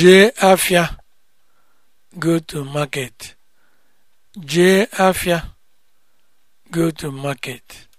jee afịa go go to market